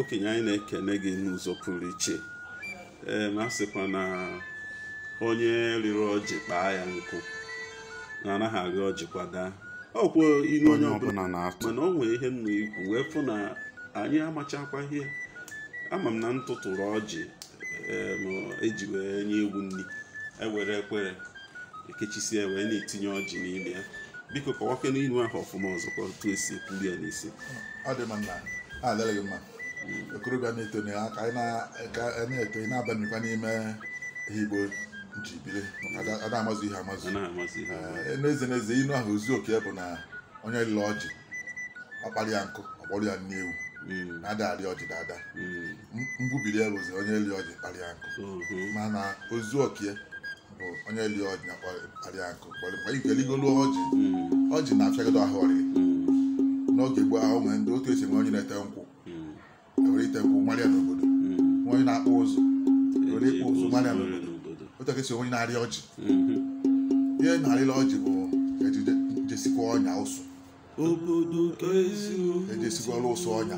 okenye anyị na-ekene gị n'ụzọ pụrụ iche ma sịkwa na onye riri ọjị kpaa ya nkụ na anaghị agha ọjị kwada ọkwụ ilu onye ọbụla mana o ihe nna ikwu wee fụ na anyị amachakwa ihe ama m na m tụtụrụ ọjị eji e wee nye egwu nri ewere ekwere ekechisie wee na-etinye ọjị n'ime ya biko kọwakena ilu ahụ ọfụma ọzọkwa otu esi ekwuli ya n'isi adịghị mma okorobịa na-eto na ka anyị na-eto ị na-abamikwa n'ime ihe igbo ji biri a na-amazụ ihe amazụ eh, n'eze n'eze inu ahụ ozu oke bụ na onye lụrụ ọjị ọkpara ya nkụ ọgbọrọ ya n'ewu hmm. na-ada arị ọjị dada hmm. mgbubiri ya bụzi onye eli ọjị ya nkụ mana ozu okie bụ onye eli ọjị na ya nkụ mgbe igeligolu ọjị hmm. ọjị na-afịagado ahụ ọrịa n'oge gboo ahụ nwere ndị otu esi nwee onye na-ete nkwụ were ite nkwụ gbalịa n'obodo onye na-akpụ ụzụ were ịkpụ ụzụ gbalịa n'obodo otu aka esi onye na-arị ọjị ihe na-arịla ọjị bụ ejisikwa ọnya ụsụ ejesikwa ọrụ ụsụ ọnya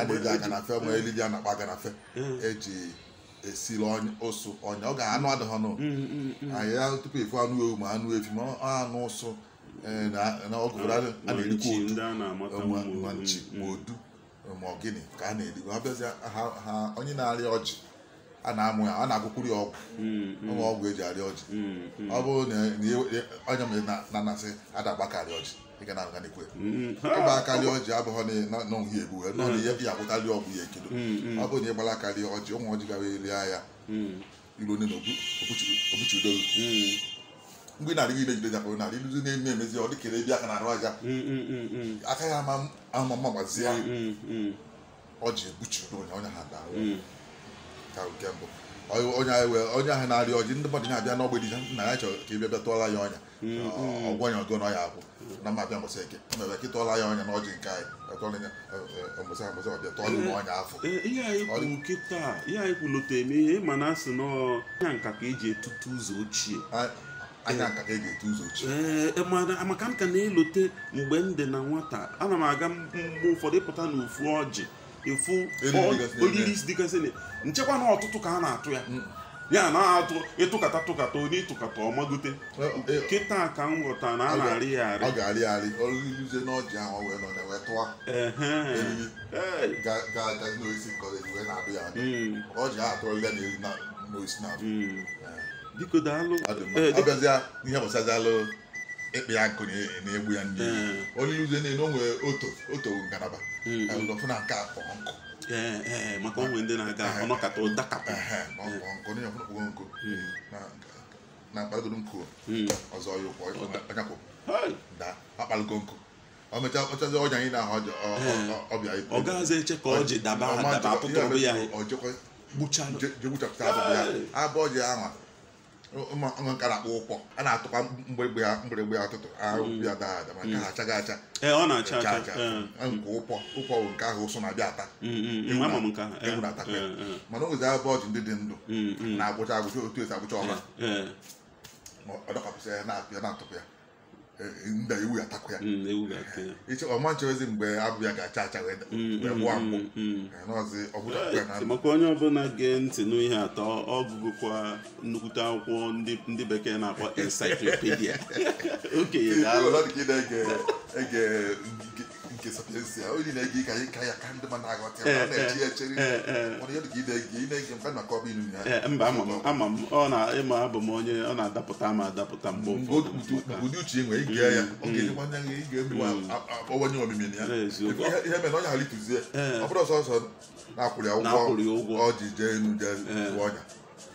adịghị aga na fe ma elidi a na-akpa aga na fe eji eh. e esiri ụsụ ọnya ọ ga anụ adịghị ọnụ hmm, hmm, hmm. anyị tupu efu anụ ewu ma anụ efi ma anụ ụsụ Eh, na ọgụ a na ma odu ọgịnị ka a na-erikwa ha ha onye na-arịa ọjị a na-amụ ya a na-agụkwuru ya ọgwụ hmm, hmm. ọgwụ eji arịa ọjị hmm, ọ bụrụ na onye e, e, mere na-anasị adagbakarị ọjị ịga na aganikwe ịgba akarịa ọjị abụghị n'ọhụ egbu wee nọ ihe ya agwụtarị ọgwụ ya ekedo ọ bụrụ na ịgbara ọjị ụmụ ọjị elie ya ne na obuchidoru mgbe narị ile jide jakpụrụ narị iluzi na-eme emezi ọ dịkere ebe aka na-arụ aja mm, mm, mm, aka ya ama ama gbazie ọ ji ebuchi onye onye ha daa ka nke mbụ onye ahụ wee onye ahụ na-arịa ọjị ndị mmadụ abịa n'ọgbe dị na ya chọrọ ka ị bịa tụọla ya ọnya ọgwụ anya ọgọ n'ọya abụ na mma abịa mbọsị eke mebe ka ịtụọla ya ọnya n'ọjị nke anyị mbọsị mbọsị ọbịa ya ọnya afọ eh, eh, ihe anyị kwuru kịta ihe anyị kwuru lote eme ka eji etutu anya e ga-ete eh, amaka eh, m ka na-elote mgbe m dị na nwata ana m aga mgbe ụfọdụ pụta na ofu ọjị efu oriri dịgasị nchekwa na ọtụtụ ka a na-atụ ya mm. ya na-atụ ịtụkata tụkata onye ịtụkata ọmagote e, kịta ka m ghọta na a na-arị ya arị ọ ga-arị arị ọrụluzie n'ọjị ahụ wee nọ na-ewe tụwa ga-agazi n'oisi nkọrọ wee na-adụ ya adụ mm. ọjị ahụ atụrụ atụrụla na eri n'oisi na-adụ mm. eh. biko daalụ abịazịa n'ihe gbasazalụ ịkpị ya nkụ na egbu ya ndị onye iluzie niile o nwere oto oto ngalaba hmm. ọfụ na nke akpọ nkụ maka onwe ndị na-aga ọnọkata ụdakapụ nkụ hmm. na nkụ hmm. ọzọ ya ọnyakwụ nkụ anyị na-ahụ ọbịa ọ eche ka daba daba abụ ya ụmụ nka na-akpọ ụkpọ a na-atụkwa mgbịrịgba ya mgbịrịgba ya ụtụtụ ahụ hmm. ya daa ada maka ha achaghị acha eh, eh. nke ụkpọ ụkpọ bụ nke ahụ ụsụ na-abịa ata ewu na-atakwa ya mana o abụọ abụ ndị dị ndụ hmm, hmm. na-agwụcha agwụcha otu esi agwụcha ọha eh, ọ dọkapụsị ya na-atụpụ ya nda ewu ga-atakwa ya iche ọma nchọzi mgbe ya ga-acha acha wee gbụa mkpụ n'ọzi maka onye ọbụla gee ntị n'ihe atọ ọ gụgụkwa nnukwute akwụkwọ ndị bekee na-akpọ encyclopedia okenye ga-alụ nke a onye na-ege ka anyị ka ya ka ndị ma eh, na-aghọta eh, ya eh, na eji ya chere mana ya dịka ị na-ege mka na kọba ilu ya mba ama m ọ na ịma abụ m onye ọ na-adapụta ma adapụta mgbe ụfọdụ ụdị uche e nwere ige ya ọ ga-enyekwa anya mm. ya ị ga-ewanye omimi ya ihe mere onye ghara ituzie ọ bụrụ ọsọsọ na-akwụrụ ya ụgwọ ọ ji jee enu jee ọnya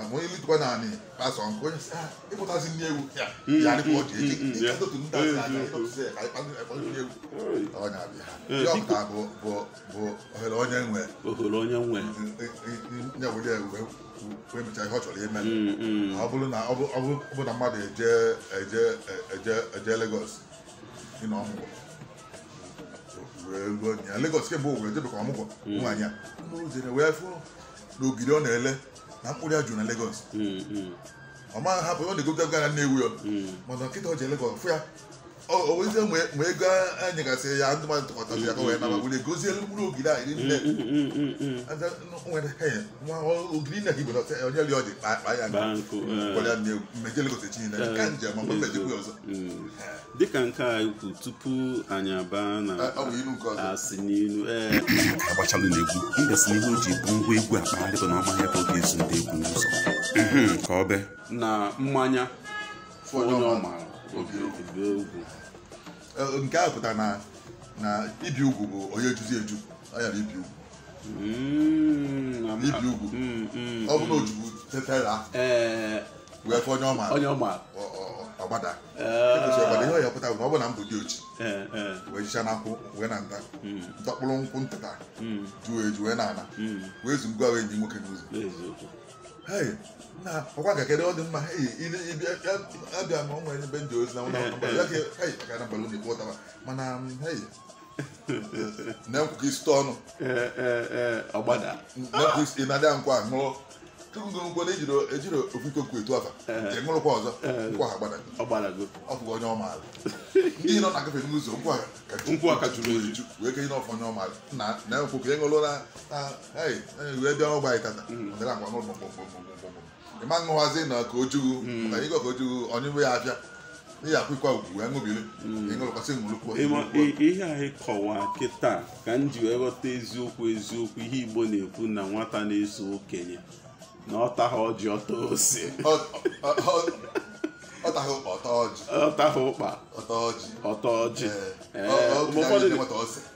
àwọn ilé tó bá náà ni pásọ nkó yẹn sẹ ẹ bọta sí ní ewu yà mm, ni kò di èyí ní kátó tó ní ta mm, mm, sí àyè tó sẹ àyè pàtó ẹ fọdún ní ewu ọ nyà bi ha eh, yọ ọkà bọ bọ bọ ọhẹlẹ ọnyẹ nwẹ ọhẹlẹ ọnyẹ nwẹ nyẹ wọlé ewu fún mi tẹ ẹ họtsọ lé mẹlẹ ọbúlú na ọbúlú na mmadụ ẹjẹ ẹjẹ ẹjẹ ẹjẹ lagos ní na ọmụgwọ wee gbuo nya lagos kemgbe owuwe debe ka ọmụgwọ nwaanyị a n'ogiri ọ na-ele na mkpụrụ ya juru na Lego's. ọ maghị hapụ ọ na-ego gaga na Nnewi mana nkịta ọ je Lagos mm, mm. mm. fụ ya onwezi ma ego ya ndị mmadụ ya ka wee naba were gozielu mkpụrụ ogiri anyị niile mm, mm, mm, ogiri na na onye li ọ dị ya eh. gwara chinile eh. ka njem ma mmejekwu ọzọ dịka nke a ikwu tupu anyị aba na asị n'ilu ee eh. agbachalụ na egwu n'ihu ji bụ ngwa egwu akpagharịkọ na ọmaghị ebe ọ ga-ezu mhm, ka ọ be na mmanya nke a pụtara na na ibi ugwu bụ onye juzi eju ọ yara ibi ugwu mm, ibi ugwu mm, mm, ọ bụ na ojugbu tetara wee fọ onye ọma e agbada ihe ọ ya pụtara na ọ bụ na mbụ dị ochi wee jichaa n'akwụ wee na nta ndọkpụrụ nkwụ ntata juo eju wee na ana wee zụ ngwa wee nyi nwoke n'ụzọ ọkwa ka kedu ọ dị mma abịa ma ọ nwere ebe ndị ozi na ụlọ mana um, na-ekwuka isi ọnụ eh, eh, eh, na-ekwuka isi na-adịghị nkwa ṅụọ ngorongoro ejiri ofikoku etu afa je ṅụrụkwa e ọzọ nkwụ ha gbadago onye ọmaala ndị nọ na agafe n'ụzọ nkwụ ha ka jụrụ wee ke n'ọfọ onye ọmaala na na e e wee bịa ọgba anyị tata mm. ọdịra agwa n'ụlọ ṅụwazi na ka ojugu mm. ịgọ ka ojugu onye nwe ya ihe ugwu wee ṅụbiri mm. ihe anyị kịta ka m ji wee ghọta eziokwu eziokwu ihe Igbo na-ekwu na nwata na-eso okenye Nota ódio, otosse. Ota roupa, otode. Ota roupa. Otode. Otode. É. é. O, o, o, é, o, o, o, o,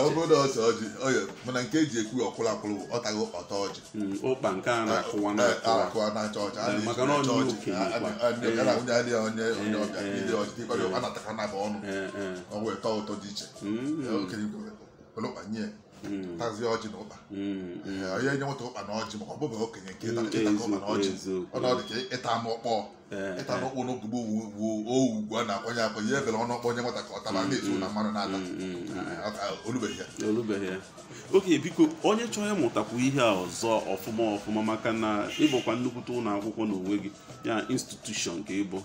obodo ose ọjị mana nke eji ekwu ọkwụrụ akwụrụ bụ ọtago ọta ọjị akụwa na-acha ọcha ọcha na nwunye adịghị onye onye ọbịa ndị ọjị dịkwara a na na naba ọnụ wee ịtọ ụtọ dị iche hmm. okenye kwere tazie ọjị na ụkpa mm, mm. onye nye nweta ụkpa na ọjị maka ọbụba okenye nke mm, ịtaka ụkpa na ọjị ọnọdụ ka ịta m ọkpọ ịta m ọkpọ n'ogbugbo owugwu a na-akwanye akwanye efere ọnụ ọkpọ onye nwata ka ọ taba na-etu na mmanụ na-ata olubeghị ya olubeghị ya oke biko onye chọọ ịmụtakwu ihe ọzọ ọfụma ọfụma maka na ịbụkwa nnukwute ụlọ akwụkwọ n'onwe gị ya institushọn ka ịbụ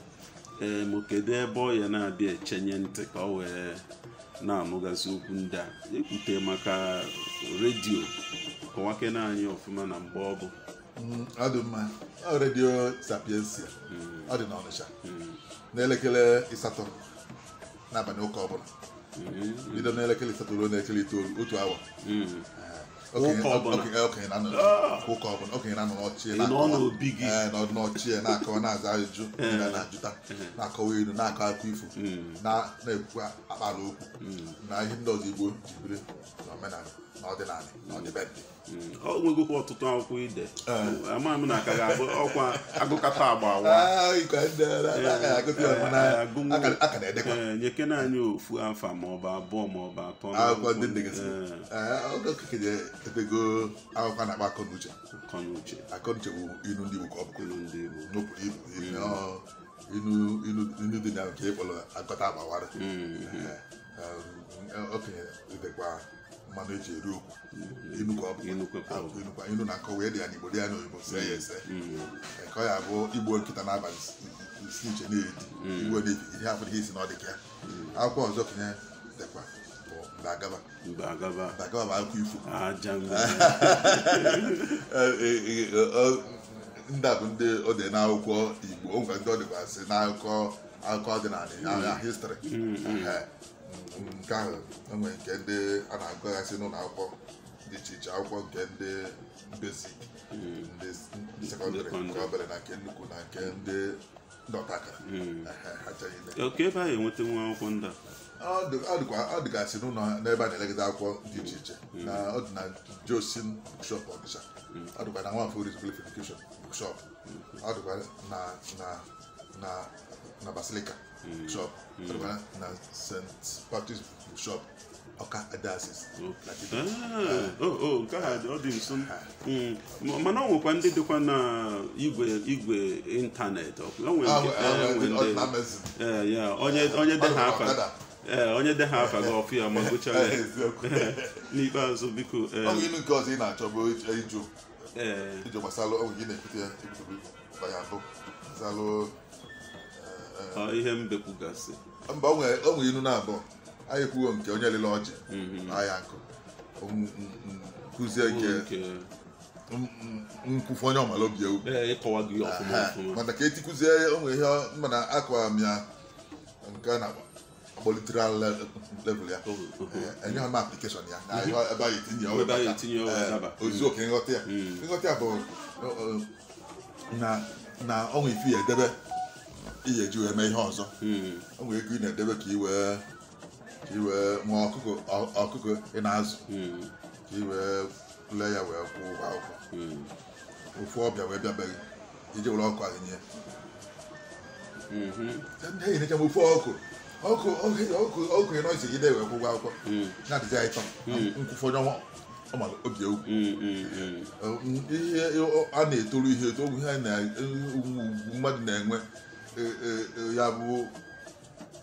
ee ma kedu ebe ọ ya na-abịa echenye ntị ka ọ wee na-anụgasị okwu ndị a ekwute maka redio kọwakena anyị ọfụma na mgbe ọ bụ mm, ọ dị mma redio sapiensia mm. ọ dị n'Ọnịcha mm. n'elekere ịsatọ n'abalị ụka ọbụla bido n'elekere ịsatọ ruo n'elekere itoolu otu awa okenye okenye ụka ọbụla na-anọ n'ọchị nọdụ na-akọwa na-aza na-ajụta na-akọwa ilu na-akọ akọ ifo na-ekwukwa akpara okwu na ihe ndị ọzọ igbo jibiri na omenala ọdịnala ọdịbedị mm. ọ nwegokwa ọtụtụ akwụkwọ ide mm. amaghị m na ka ga-abụ ọkwa agụkata agba ah, eh, eh, eh, nyekena anyị ofu afa maọbụ abụọ maọbụ atọ ah, akwụkwọ na-akpa akọnuche akọnuche bụ ilu ndị Igbo ka ọ bụ ilu dị na nke ịkpọrọ agụkata agbawara mm. okenye mmanụ eji eri okwu ilu mm-hmm. na nkọ wee dị ya n'igbo dị ya n'oyibo see ya mm-hmm. ese mm-hmm. ka ọ ya bụ igbo nkịta n'abalị isi iche na-edi igbo na ihe abụrụ ihe isi na ọ dị ka ya akwụkwọ ọzọ kenye dịkwa Mbagaba Mbagaba bụ akụkọ ifo e, e, e, ndị a bụ ndị ọ dị n'akwụkwọ igbo o ndị ọ dịkwa dịkwasị n'akụkọ akụkọ ọdịnala histrị nke ahụ enwere nke ndị a na-agụghasị n'ụlọ akwụkwọ dị iche iche akwụkwọ nke ndị besik ndị sekọndịrị nke obere na nke nnukwu na nke ndị dọtaka oke ebe a ga-enweta nwa akwụkwọ ndị a. ọ dịgasị n'ụlọ n'ebe a na-elegide akwụkwọ dị iche iche hmm. na ọ dị na josin bukshop ọnịsha hmm. ọ dịkwa na nwafọ rizgulif edukeshon bukshop hmm. ọ dịkwa na basilika shop Trevana na St. bụ shop Ọka Adasis nke a ọ dị nso mana ọ nwekwa ndị dịkwa na igwe igwe ịntanetị onye dị ha afa ee onye de ha afa gị ya ma ya? n'ikpeazụ biko ilu na-achọ bụ gbasara na-ekwute ya ihe mbekwugasị mba o nwere ilu na-abụọ anyị kwuo nke onye lele ọjị ahịa nkụ nkụzie nke nkwufu onye ọmala obi ewu mana ka etikụzie onwe ihe mana akọwara m ya nke na kpọlitere level ya oh, oh, oh. enye ha m aplikeshọn mhm. ya ebe anyị etinye ozi oke nghọta ya mhm. nghọta ya bụ na ọnwa ifi ya edebe ihe eji wee mee ihe ọzọ o nwere ego ị na-edebe ka iwee ka iwee nwee ọkụkọ ọkụkọ ị na-azụ ka iwee lee ya wee kwụọ ụgwọ akwụkwọ ofu ọbịa wee bịabeghị iji were ọkụ ahụ nye ndị enyi na-eche m ofu ọkụ ọkụ ọkụ ọkụ ị nọzi ide wee kwụọ ụgwọ akwụkwọ na-adịzi anyị tọ nkwụfọ onye ọnwa ọmara obi egwu ihe a na-etoru ihe eto ihe mmadụ na-enwe E, e, e, ya bụ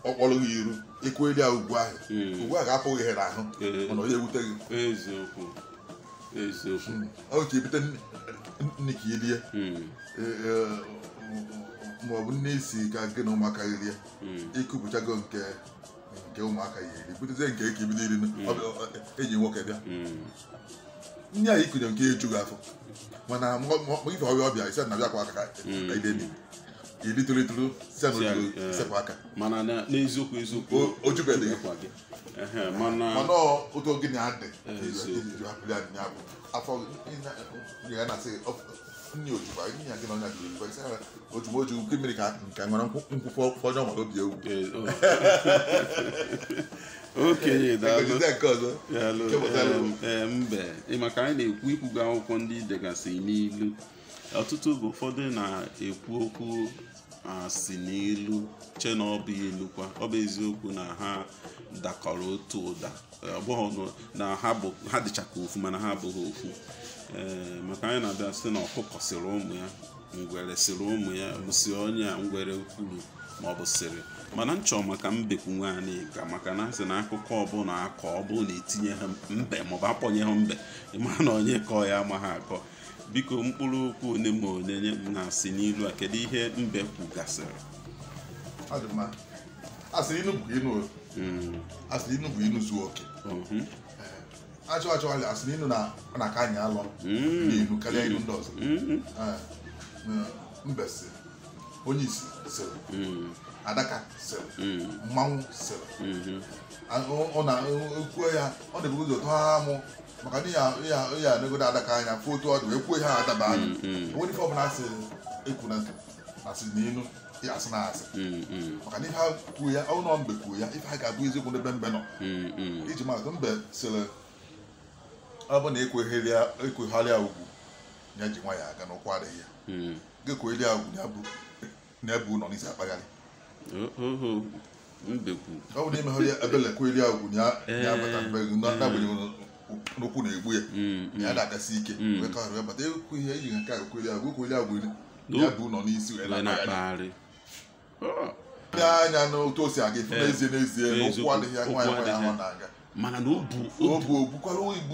ọkpọrọ gị iru ikweli ya ugbu ahụ hmm. Ugbu a ga-apụghị ihe n'ahụ hmm. mana onye ewute gị hmm. ọ ka ebute nne ka ọ bụ nne isi ka gị na ụmụaka gị rie ịkụpụchago nke nke ụmụaka ya eri butezie nke ka ebido iri eji nwoke bịa ndị a ikunye nke ejughị afọ mana ife ọbịa ọbịa isi na bịakwa aka ka ide niile iri tolitolu sepụ aka mana n'eziokwu eziokwu ojubeghị mana otu oge na-adị bụ afọ ya na-asị nne ojukwa nya gị na ọnya jiri mfe sara ojugbo oju nke mmiri ka nke nwere nkwụkwọ ọjọọ nwere obi ewu okenye daalụ mbe maka anyị na-ekwu ikwuga akwụkwọ ndị degasị n'ilu ọtụtụ bụ ụfọdụ na-ekwu okwu asị na che na ọ bụ ilukwa ọ bụ eziokwu na ha dakọrọ otu ụda ọbụghị na ha dịchaka ofu mana ha abụghị ofu maka anyị na-abịa site na ọkụkọ sịrị ụmụ ya ngwere sịrị ụmụ ya bụsi onye a ngwere kwuru ma ọ bụ sịrị mana m maka mbekwu nwaanyị ka maka na asị na akụkọ ọbụla akọ ọbụ na etinye ha mbe maọbụ akpọnye ha mbe ịma na onye kọọ ya amaghị akọ biko mkpụrụ okwu onye ma one na-asị n'ilu a kedụ ihe mbe kwugasịrị asịrị inu bụ inu hmm. asịrị inu bụ inu zuo oke eh, achọ achọ ọrịa asịrị inu na ọ na-aka anyị alọ hmm. n'inu karịa inu ndị ọzọ hmm. eh, mbe si onye isi sịrị adaka sere mm. mmanwụ sere mm-hmm. kwuo ya ọ na-ebu ụzọ tụọ ha amụ maka na ya negodo adaka anya fụ otu ọ dị wee kwuo ihe adaba anya onwere ife ọbụla asị ekwuna asị n'inu asị na asị mm-hmm. maka na ihe ha kwuo ya ọ nọ mbe kwuo ya ife ha ga-abụ eziokwu n'ebe mbe nọ mm-hmm. iji maatụ mbe sere ọ bụ na ekwegharịa e ugwu ya ji nwa ya aga n'ụkwụ adịghị ya mm. ga-ekwegharịa ugwu n'ebe nọ n'isi akpagharị ọ bụ n'ime agwụ na n'ụkwụ na-egbu ya mm, mm. ya na-agasi ike mm. wee ka bata ekwu ihe eji nke a ekweli agwụ ekweli agwụ ya bụ ụlọ n'isi wee na-akpagharị ndị anya n'otu o si aga efu n'ezie n'ezie n'ụkwụ adịghị ya nwaanyị nwaanyị ahụ na-aga mana na obu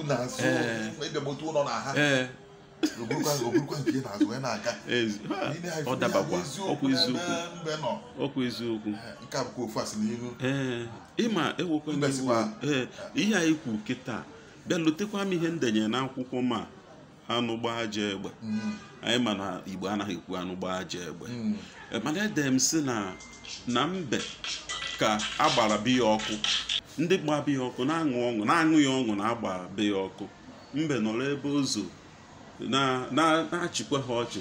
na azụ ụlọ na ha ọ dabakwa ọkwa eziokwu ee ịma ewekwana ee ihe anyị kwu kịta bịa lotekwa m ihe ndenye na akwụkwọ ma anụ aja egbe mm. anyị ma na igbo anaghị ekwu anụ aja egbe mm. mana ede m si na na mbe ka agbara biya ọkụ ndị gba biya ọkụ na-aṅụ ọṅụ na-aṅụ ya ọṅụ na-agba biya ọkụ mbe nọrọ ebe ozo na-achịkwa ha ọchị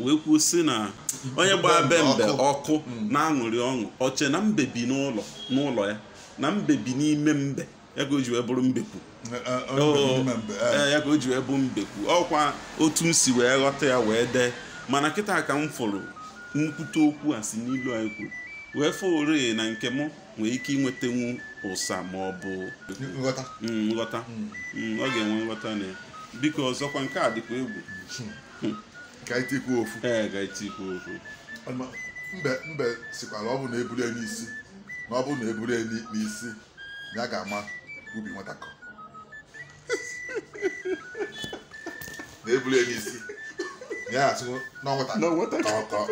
wee kwuo si na onye gbaa be mbe ọkụ hmm. na-aṅụrị ọṅụ ọche na mbe bi n'ụlọ n'ụlọ ya na mbe bi n'ime mbe ya ka o ji wee bụrụ mbekwu e, e. ya ka o ji wee bụ mbekwu ọkwa otu m si wee ghọta ya wee dee mana kịta ka m fụrụ nkwute okwu a si n'ilu anyị kwuru wee ori na nke m nwee ike ịnwetanwu ụsa ma ọ bụ nghọta mm, hmm. mm, ọ ga-enwe nghọta na ya biko ọzọkwa nke a dịkwa egwu ofu mbe sikwara ọ bụ na eburu n'isi na ọ na eburu n'isi ya ga-ama ubi nwatakọ na eburu n'isi ya atụ asụ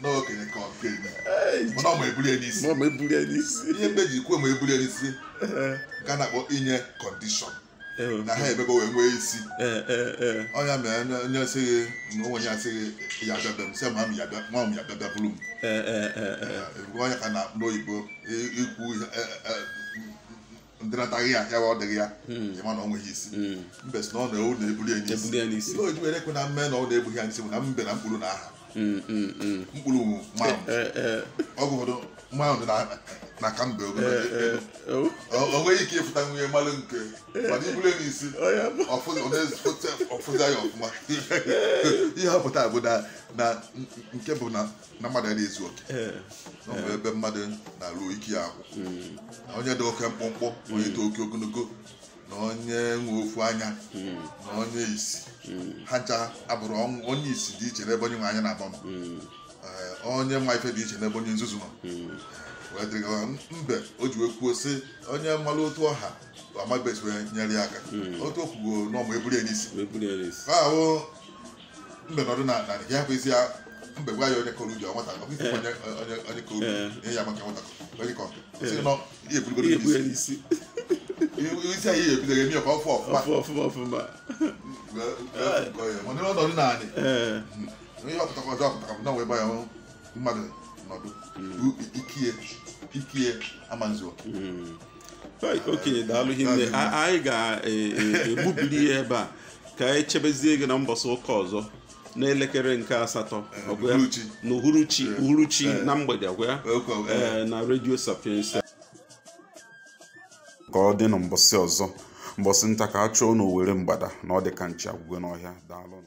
n'okenye ka okenye mana ọma eburu n'isi ihe mbe ji kwuo ma eburu n'isi nke a na-akpọ inye kọndishọn Eh, na ha ebebe wee nwee isi eh, eh, ọnya mere onye sị gị na onwenye asị gị ya bịabe m se sị nwa m ya bịabe bụrụ m onye ka na-akpụ n'oyibo ikwu ndịnataghị ya ya ọ dịghị ya hmm. ịma hmm. na ọ nweghị isi mbe na ọ na-ewu na-ebuli ya n'isi ihe oji were ekwe na mme na ọ na-egbughị ya n'isi bụ na mbe na mkpụrụ na aha hmm, mkpụrụ ma ọgụ ụfọdụ nwa ahụ dị na ka mbe eh, eh, eh, oh. o nweghị ike ịfụta nwunye mmalụ nke mana ibule n'isi oh, ọfụza ya ọfụma ihe ọ pụta bụ na nke bụ na mmadụ adịghị ezu oke ọbụ ebe mmadụ na-alụ ike ya akwụ hmm. onye dị oke mkpụmkpụ onye dị hmm. oke ogologo na onye nwe ofu anya hmm. na onye isi ha ncha abụrụ onye isi dị iche n'ebe onye nwe anya na-agba onye ma ife dị iche n'ebe onye nzuzu nọ hmm. wee gaa. mbe o ji wee sị onye mmalụ otu ọha amabes wee nyere ya aka hmm. otu okwugo n'ọmụ eburu ya e ahụ mbe nọdụ na narị ya hapụ isi ya mbe gwa ya onye kọrọ ubi nwata onye kọrọ ubi eh. ya maka nwata onye kọ nọ isi anyị ọfụ ihe ọpụtakwa ọzọ ọpụtakwa na wee gba ya mmadụ nọdụ bụ ikie ikie amanzuo okenye daalụ hinne anyị ga-egbubili ya ebe a ka anyị chebezie gị na mbọsị ụka ọzọ n'elekere nke asatọ na uhuruchi uhuruchi na mgbede gwa na redio sapiensa ka ọ dị na mbọsị ọzọ mbọsị nta ka a chụọ n'owere mgbada na ọ dị ka nchi agwụgwe n'ọhịa daalụ